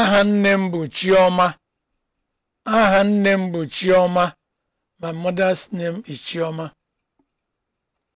aha nne m bụ chioma aha nne m bụ chioma my mother's name is chioma